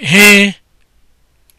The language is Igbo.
he